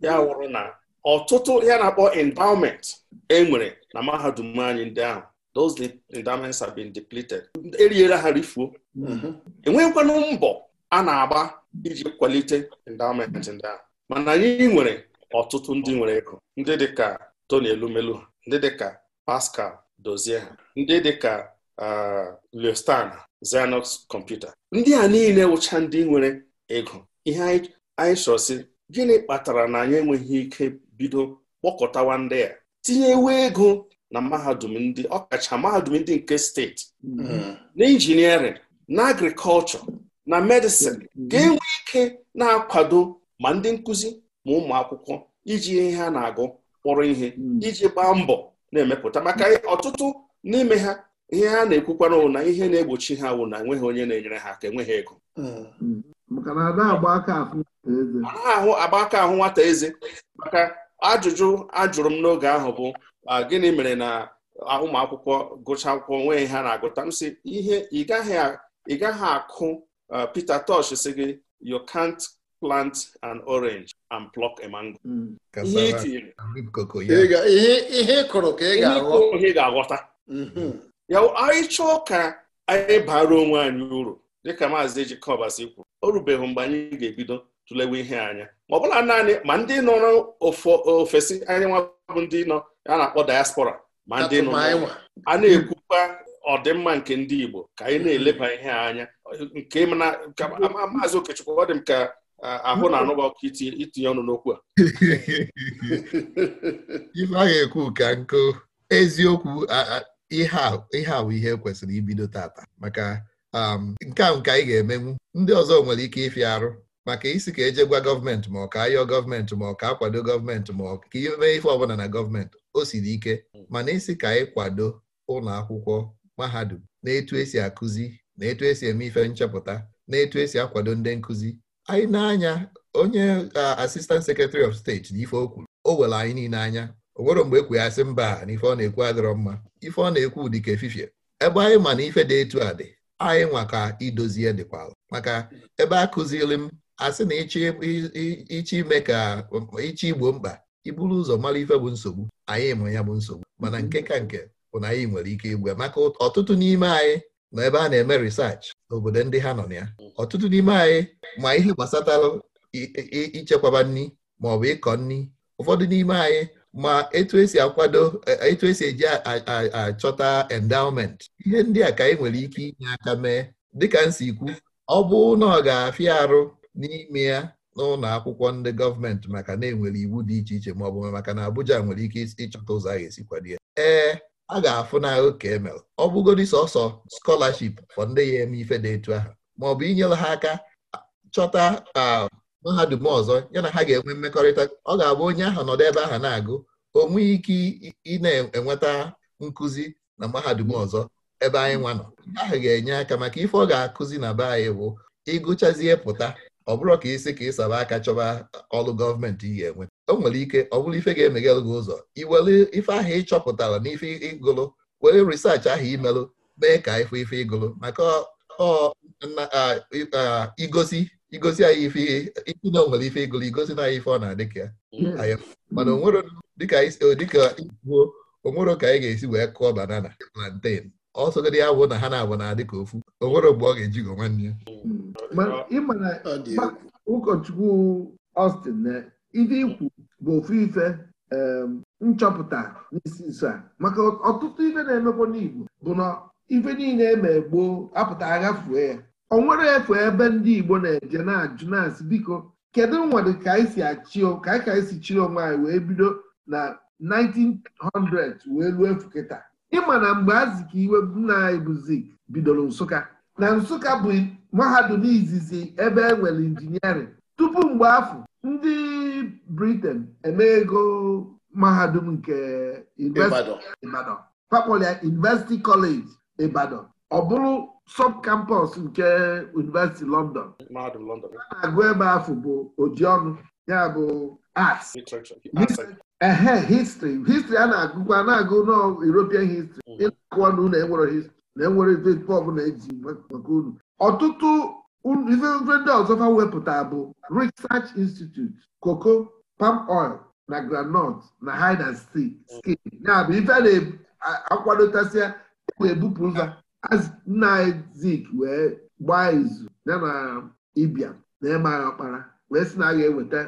ya wụrụ na ọtụtụ ya na-akpọ endowment enwere na mahadum anyị ndị ahụ those endowments have been depleted eriela ha rifuo mhm. enweghịkwanụ mbọ a na-agba iji kwalite endowment ndị ahụ mana anyị nwere ọtụtụ ndị nwere ego ndị dị ka Tony Elumelu ndị dịka Pascal dozie ha ndị dịka ah, Leostan Xerox kọmputa ndị a niile wụcha ndị nwere ego ihe anyị chọsi gịnị kpatara na anyị enweghị ike bido kpọkọtawa ndị a tinyewe ego na mahadum ndị ọkacha mahadum ndị nke steeti hmm. na injiniarịn na agrikọlchọ na medịsin ga-enwe hmm. ike na-akwado ma ndị nkụzi ma ụmụ akwụkwọ iji ihe ha na-agụ kpọrọ ihe hmm. iji gbaa mbọ na-emepụta maka ọtụtụ n'ime ha ihe ha na ekwukwara na ihe na-egbochi ha wụ na enweghị onye na-enyere ha aka enweghị ego hmm. ahụ agba aka ahụ nwata eze maka ajụjụ ajụrụ m n'oge ahụ bụ gịnị mere na ụmụ akwụkwọ gụcha akwụkwọ nwee ha na-agụta m sị ihe ị gaghị akụ uh, Peter Tosh si gị you can't plant an orange and pluck a mango. Hmm. ihe ịkụrụ mhm. ka ị ga-aghọta ya anyị chọọ ka anyị bara onwe anyị uru dịka maazị Jekọbas kwu o rubeghị mgbe anyị ga-ebido tụlewe ihe anya ma ọ bụla naanị ma ndị nọ ofesi anyị nwa ndị nọ a na-akpọ diaspora ma ndị nọ a na-ekwukwa ọdịmma nke ndị Igbo ka anyị na-eleba ihe anya nke maazị Okechukwu ọ dị m ka ahụ na-anụ ọkụ itinye ọnụ n'okwu a *laughs* ife a ga-ekwu ka nkụ eziokwu ihe a bụ ihe kwesịrị ibido tata maka um, nke a nke anyị ga-emenwu ndị ọzọ nwere ike ịfịa arụ maka isi ka eje gwa gọọmenti ma ọ ka ayọ gọọmenti ma ọ ka akwado gọọmenti ma ọ ka imee ife ọbụla na gọọmenti o siri ike mana isi ka anyị kwado ụlọ akwụkwọ mahadum na etu esi akụzi na etu esi eme ife nchepụta na etu esi akwado ndị nkụzi anyị na-anya onye asistant secretary of steeti na ife o kwuru o were anyị niile anya o nwere mgbe ekwe mba na ife ọ na-ekwu adịrọ mma ife ọ na-ekwu dịka efifie ebe anyị ma na ife dị etu a dị anyị nwa ka idozie dịkwa ala maka ebe a kụziri m asị na ịchọ ime ka ịchị igbo mkpa iburu ụzọ mara ife bụ nsogbu anyị ma ya bụ nsogbu mana nke ka nke bụ na anyị nwere ike igwe maka ọtụtụ n'ime anyị na ebe a na-eme research n'obodo ndị ha nọ na ya ọtụtụ n'ime anyị ma ihe gbasatalụ ichekwaba nri ma ọ bụ ịkọ nri ụfọdụ n'ime anyị ma etu esi akwado e, etu esi eji achọta endowment ihe ndị a ka anyị nwere ike inye aka mee dịka nsikwu ọ bụ na ọ ga-afịa arụ n'ime ya n'ụlọ akwụkwọ ndị gọọmenti maka na enwere iwu dị iche iche ma ọ bụ maka na Abuja nwere ike ịchọta ụzọ a ga-esi kwado ya ee a ga-afụnahụ ka emel ọ bụgodi sọsọ skọlaship fọ ndị ya eme ife dị etu ahụ maọbụ inyere ha aka chọta mahadum ọzọ ya na ha ga-enwe mmekọrịta ọ ga-abụ onye ahụ nọdụ ebe ahụ na-agụ o nweghị ike ị na-enweta nkụzi na mahadum ọzọ ebe anyị nwa nọ ahụ ga-enye aka maka ife ọ ga-akụzi na be anyị bụ ịgụchazie pụta ọ bụrụ ka isi ka saba aka chọba ọrụ gọọmenti ị ga-enwe o nwere ike ọ bụrụ ife ga-emeghelụ gị ụzọ iwere ife ahụ ị chọpụtara na ife ịgụlụ were risaachị ahụ imelụ mee ka ife ife ịgụlụ maka igosi igosi anyị ife ikwu na onwere ife ịgụlụ igosi na anyị ife ọ na-adị ka ya hmm. mana dịka onwero ka anyị ga-esi wee kụọ banana plantain ọsọgide ya bụ na ha na-abụ na-adị ka ofu onwere mgbe ọ ga-ejigo eji nwanne ya hmm. ụkọchukwu Austin eh, ife ikwu bụ ofu ife nchọpụta n'isi nso a maka ọtụtụ ife na-emekwa n'Igbo bụ na ife niile eme gboo apụta aghafue ya ọ nwere efe ebe ndị Igbo na-eje na-ajụ na-asị biko kedu nwere ka anyị si ka anyị ka anyị si chiri onwe anyị wee bido na 1900 wee ruo efu kịta ịma na mgbe azị ka iwe nna anyị bụ bidoro Nsụka na Nsụka bụ mahadum izizi ebe e nwere injiniarịn tupu mgbe afọ ndị Britain eme ego mahadum nke Ibadan fakpọlịa University College Ibadan ọ bụrụ campus nke University London a na-agụ ebe afọ bụ ojiọnụ ya bụ arts ehe history history a na-agụkwa na-agụ nọ European history mm. ịna-akụọ na unu e enwere history na enwere ife eji maka unu ọtụtụ ife ndị ọzọ fa wepụta bụ research institute cocoa palm oil na groundnut na hide and seek ya bụ ife na-akwadotasịa ebupụ ụzọ nna zik wee gbaa izu ya na ibia na ịmagha ọkpara wee sị na a eweta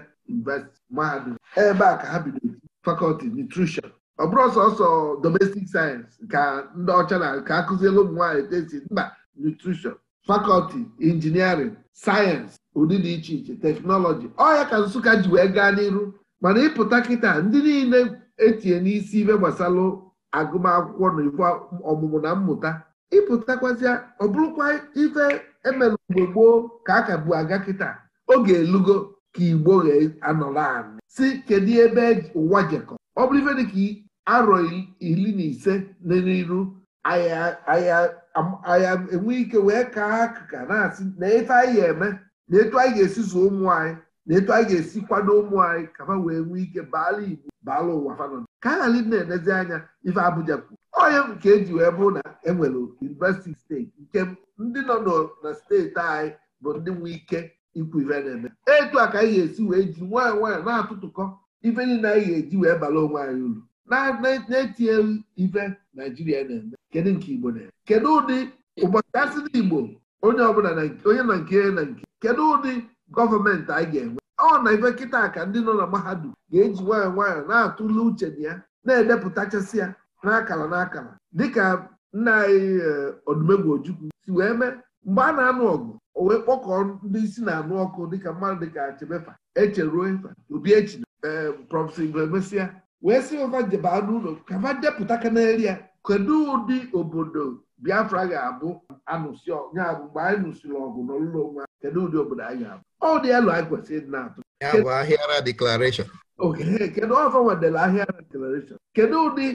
mahadum ebe a ka ha bidoro fakọlti nutrition ọ bụrụ sọsọ domestic sayensị ka ndị ọcha na ka akụziela ụmụ nwaanyị tesi mba nutrition fakọlti injiniarịn sayensị ụdị dị iche iche teknọlọji ọya ka Nsụka ji wee gaa n'iru mana ịpụta kịta ndị niile etinye n'isi ibe gbasara agụmakwụkwọ na ife ọmụmụ na mmụta ịpụtakwazịa ọ bụrụkwa ife emere mgbe gboo ka a ka bụ aga kịta oge elugo ka igbo anọrọ anị si kedu ebe ụwa jekọ ọ bụrụ ife dịka arọ iri na ise n'iru ahịa aya enwe ike wee kaa akụka na-asị na efe anyị ga-eme na etu anyị ga-esi zụọ ụmụ anyị na etu anyị ga-esi kwado ụmụ anyị ka wee nwee ike baala Igbo baala ụwa fanọ ka a ghara na-enezi anya ife Abuja kwuru onye nke eji wee bụrụ na enwere yunivesiti steeti nke ndị nọ na steeti anyị bụ ndị nwee ike ikwu ife na-eme etu a ka anyị ga-esi wee ji nwaanyị nwaanyị na-atụtụkọ ife niile anyị ga-eji wee bala onwe anyị uru na-etinye ife naijiria na-eme kedu nke igbo na-eme kedu ụdị ụbọchị asị na igbo onye ọbụla onye na nke na nke kedu ụdị gọọmenti anyị ga-enwe ọ na ife kịta ka ndị nọ na mahadum ga-eji nwayọọ nwayọọ na-atụle uche na ya na-edepụtachasị ya n'akara n'akara dịka nna anyị Odumegwu eh, Ojukwu si wee mee mgbe a na-anụ ọgụ o wee kpọkọọ ndị isi na-anụ ọkụ dịka mmadụ dịka Achebefa echeruo obi echi eh, prọfesọ Igbo emesịa wee sị ova jebaa n'ụlọ ka va depụta ka ya kedu ụdị obodo biafra ga-abụ anụsị ya bụ mgbe anyị nụsịrị ọgụ n'ụlọ onwe kedu ụdị obodo anyị ga abụ ọ dị elu anyị kwesịrị ịdị na-atụ ya bụ ahịara deklarashọn kedu ọzọ nwedere ahịara deklarashọn kedu ụdị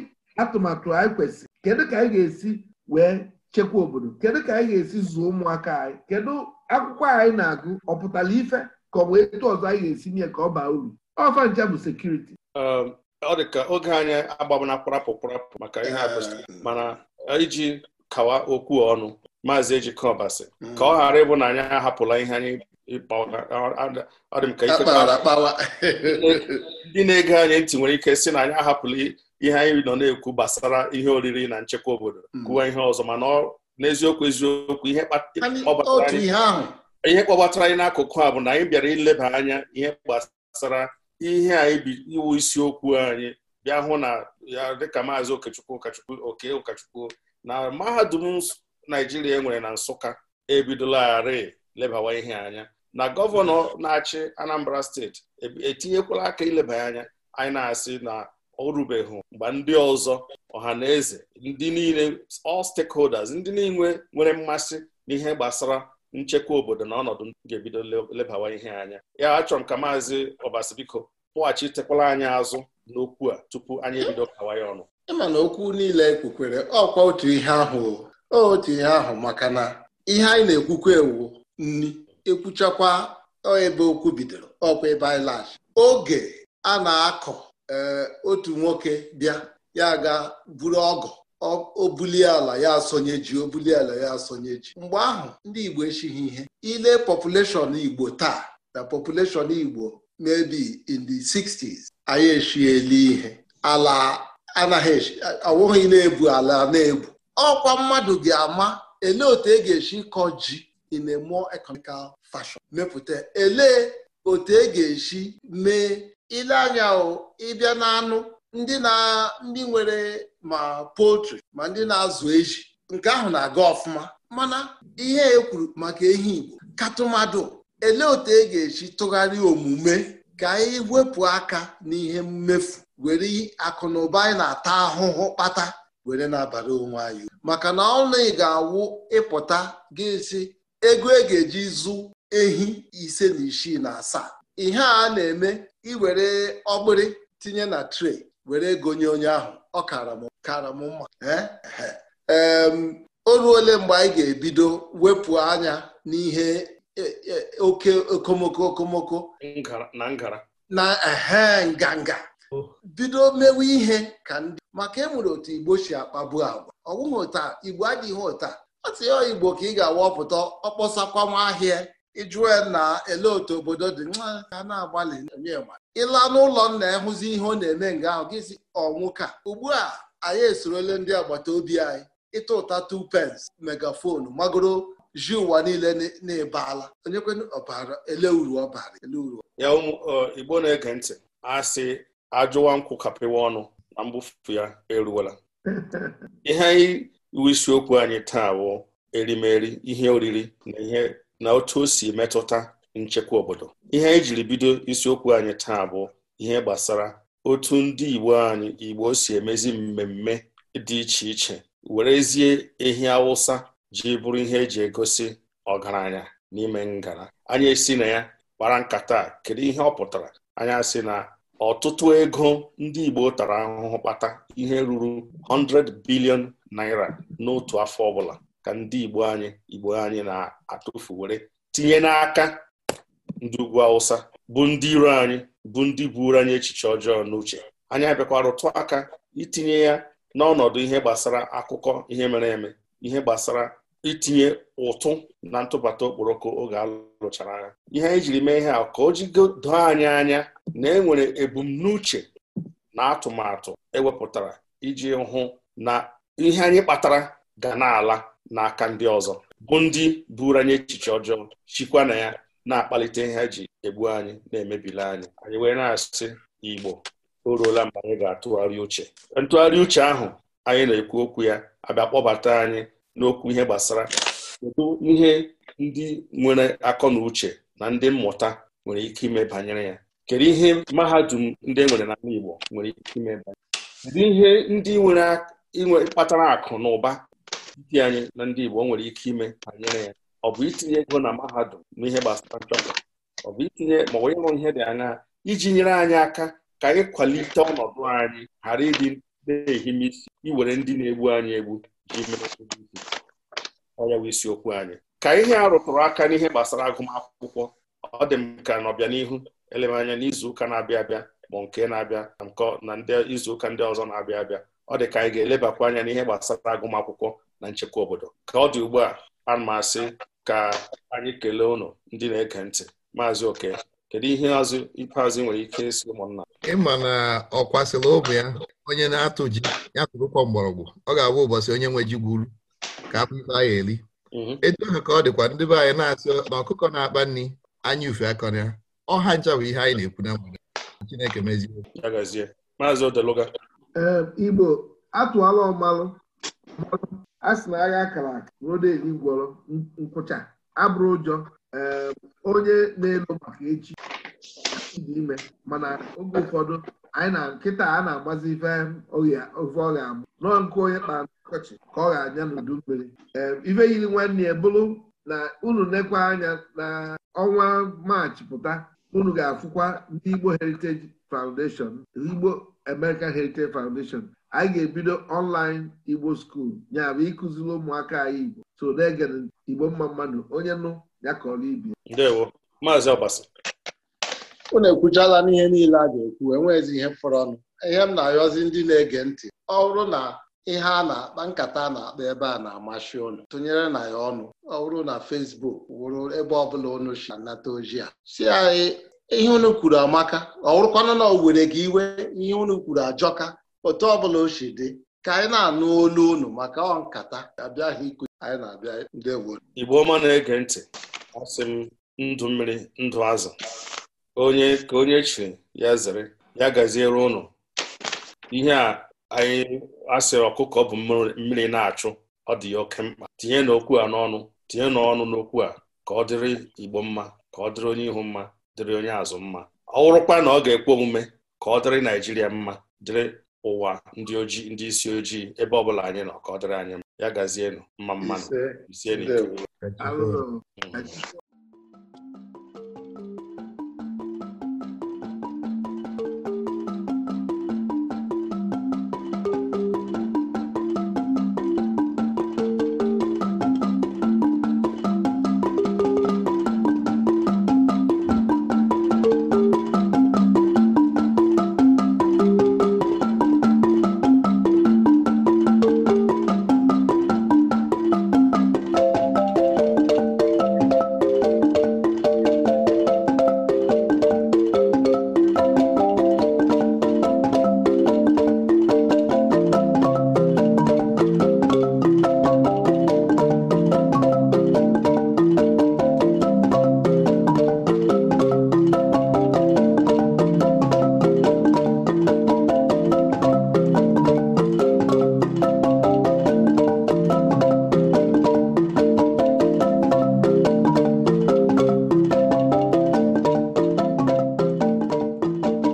atụmatụ anyị kwesịrị kedu ka anyị ga-esi wee chekwa obodo kedu ka anyị ga-esi zụọ ụmụaka anyị kedu akwụkwọ anyị na-agụ ọ pụtara ife ka ọ bụ etu ọzọ anyị ga-esi nye ka ọ baa uru ọfa ncha bụ sekuriti um, ọ dị ka oge anyị agbabana kwarapụ kwarapụ maka ihe a ah, mana iji kawa okwu ọnụ maazị ejike ka ọ hmm. ghara ịbụ na anyị ahapụla ihe anyị ọ dị m ka ndị na-ege anyị ntị nwere ike si na anyị ahapụla ihe anyị nọ na-ekwu gbasara ihe oriri na nchekwa obodo hmm. kụwa ihe ọzọ mana n'eziokwu eziokwu ihe kpọbatara anyị n'akụkụ a bụ na anyị bịara ileba anya ihe gbasara ihe anyị iwu isiokwu anyị bịa hụ na ya dịka maazị okechukwu ụkachukwu oke ụkachukwu na mahadum naijiria e nwere na nsụka ebidolarị lebawa ihe anya na gọvanọ na-achị anambra steeti etinyekwala aka ileba anya anyị na-asị na ọ rubeghị mgbe ndị ọzọ ọha na eze ndị niile all stakeholders ndị niile nwere mmasị n'ihe gbasara nchekwa obodo na ọnọdụ ndụ ga-ebido lebawa ihe anya ya achọrọ m ka maazị ọbasi biko pụghachitekwala anyị azụ n'okwu a tupu anyị ebido kawa ya ọnụ ịma na okwu niile kwukwere ọkwa otu ihe ahụ otu ihe ahụ maka na ihe anyị na-ekwukwa ewu nni ekwuchakwa ebe okwu bidoro ọkwa ebe anyị oge a na-akọ eh, otu nwoke bịa ya ga buru ọgụ obulie ala ya asonye ji obuli ala ya asonye ji mgbe ahụ ndị Igbo echighị ihe ile population Igbo taa na population Igbo maybe in the 60s anyị echiele ihe ala anaghị awụghị na-ebu ala na-ebu ọkwa mmadụ ga-ama ele otu e ga-esi kọ ji in a more economical fashion mepụta ele otu e ga-esi mee ile anya ịbịa n'anụ ndị na ndị nwere ma poultry ma ndị na-azụ eji nke ahụ na-aga ọfụma mana ihe e kwuru maka ehi Igbo katụmadụ ele otu e ga-eji tụgharịa omume ka anyị wepụ aka n'ihe mmefu were akụ na ụba anyị na-ata ahụhụ kpata were na-abara onwe anyị maka na ọnụ ị ga-awụ ịpụta ga-esi ego e ga-eji zụ ehi ise na isii na asaa ihe a na-eme iwere ọgbịrị tinye na tre were ego onye ahụ ọ kara m kara m mma o ruole mgbe anyị ga-ebido wepụ anya n'ihe e, e, oke okomoko okomoko na ehe nganga bido mewe ihe ka ndị maka enwere otu igbo si akpagbu agwa ọgwụghị ụta igbo adịghị ụta ọ tinye igbo ka ị ga-awapụta ọkpọsakwa nwa ahịa ịjụe na ele otu obodo dị nwa ka na-agbalị ịla n'ụlọ nna ịhụzi ihe ọ na-eme nga ahụ gị si ọnwụka ugbu a anyị esorole ndị agbata obi anyị ịta ụta tu pence megafonu magoro ji ụwa niile na-ebeala onyekwenu ọbara ele uru ọbara ele uru ya igbo na-ege ntị a sị ajụwa nkwụ kapịwa ọnụ na mbufu ya eruola *laughs* ihe anyị iwu isiokwu anyị taa bụ erimeri ihe oriri na ihe na otu o si metụta nchekwa obodo ihe ejiri bido isiokwu anyị taa bụ ihe gbasara otu ndị Igbo anyị Igbo si emezi mmemme dị iche iche werezie ehi Awụsa ji bụrụ ihe eji egosi ọgaranya n'ime ngara anyị esi na ya kpara nkata kedu ihe ọ pụtara anyị sị na ọtụtụ ego ndị Igbo tara ahụhụ kpata ihe ruru 100 bilion naira n'otu afọ ọbụla ka ndị Igbo anyị Igbo anyị na-atụfu were tinye n'aka ndị ugwu Awụsa bụ ndị iro anyị bụ ndị buru anyị echiche ọjọọ n'uche anyị abịakwara rụtụ aka itinye ya n'ọnọdụ ihe gbasara akụkọ ihe mere eme ihe gbasara itinye ụtụ na ntụbata okporoko oge alụchara agha ihe anyị jiri mee ihe a ka o jigodo anyị anya na e nwere ebumnuche na atụmatụ ewepụtara iji hụ na ihe anyị kpatara ga na-ala n'aka ndị ọzọ bụ ndị buru anyị echiche ọjọọ chikwa na ya na-akpalite ihe e ji egbu anyị na emebile anyị anyị wee na-asị Igbo o ruola mgbe anyị ga-atụgharị uche ntụgharị uche ahụ anyị na-ekwu okwu ya abịa kpọbata anyị n'okwu ihe gbasara kedu ihe ndị nwere akọ na uche na ndị mmụta nwere ike ime banyere ya kedu ihe mahadum ndị e nwere n'ala Igbo nwere ike ime banyere kedu ihe ndị nwere kpatara akụ na ụba ndị anyị na ndị Igbo nwere ike ime banyere ya ọ bụ itinye ego na mahadum n'ihe gbasara nchọpụta ọ bụ itinye ma onye nwe ihe dị anya iji nyere anyị aka ka anyị kwalite ọnọdụ anyị ghara ịdị na-ehime isi iwere ndị na-egbu anyị egbu ji mere isiokwu anyị ka ihe a rụtụrụ aka n'ihe gbasara agụmakwụkwọ ọ dị m ka n'ọbịanihu eleba anya n'izuụka na-abịa abịa ma nke na-abịa na nke na ndị izuụka ndị ọzọ na-abịa abịa ọ dị ka anyị ga-elebakwa anya n'ihe gbasara agụmakwụkwọ na nchekwa obodo ka ọ dị ugbu a ana asị ka anyị kelee ụnụ ndị na-ege ntị maazị oke kedu ihe azụ ikpeazụ nwere ike isi ụmụnna ịma na ọ kwasịla ụmụ ya onye na-atụ ji ya tụrụkwa mgbọrọgwụ ọ ga-abụ ụbọchị onye nwe ji gwuru ka afọ ife anyị eli mhm. etu ahụ ka ọ dịkwa ndị be anyị na-asị na ọkụkọ na-akpa nri anya ufe akọ ya ọha ncha bụ ihe anyị na-ekwu na Chineke mezie maazị odeluga ee Igbo atụọla ọmalụ a sị na agha akara aka rodeli gwọrọ nkwụcha abụrụ ụjọ eh, onye na-elo maka echi dị ime mana oge ụfọdụ anyị na nkịta a na-agbazi ofe ọ ga-abụ nọọ nke onye kpara ọkọchị ka ọ ga-anya n'udu mmiri eh, ife yiri nwanne ya bụrụ na unu nekwa anya na ọnwa maachị pụta unu ga-afụkwa ndị Igbo Heritage Foundation Igbo American Heritage Foundation anyị ga-ebido ọnlaịn igbo skuul ya ịkụziri ụmụaka anyị igbo so na igbo mma mmadụ onye nụ ya kọrọ ibi ndewo maazị Ọ na ekwuchala n'ihe niile a ga-ekwu enweghịzi ihe fọrọ ọnụ ihe m na-ayọzi ndị na-ege ntị ọ bụrụ na ihe a na-akpa nkata a na-akpa ebe a na-amasị ụnụ tụnyere na ya ọnụ ọ bụrụ na Fesbuk wụrụ ebe ọbụla ụnụ si anata oji a si anyị ihe unu kwuru amaka ọ bụrụkwanụ na owere were gị iwe ihe unu kwuru ajọka otu ọbụla o si dị ka anyị na-anụ olu unu maka ọ nkata abịaghị ikwu anyị na-abịa ndị Igbo ọma na-ege ntị asị m ndụ mmiri ndụ azụ onye ka onye chiri ya zere ya gaziere ụnụ ihe a anyị asịrị ọkụkọ bụ mmiri na-achụ ọ dị ya oke mkpa tinye n'okwu a n'ọnụ tinye n'ọnụ n'okwu a ka ọ dịrị Igbo mma ka ọ dịrị onye ihu mma dịrị onye azụ mma ọ wụrụkwa na ọ ga-ekwe omume ka ọ dịrị Naijiria mma dịrị ụwa ndị oji ndị isi ojii ebe ọ bụla anyị nọ ka ọ dịrị anyị ya gazienụ mma mmanụ isienụ